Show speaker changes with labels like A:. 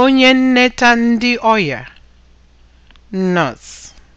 A: onye nneta ndị ọya nọs.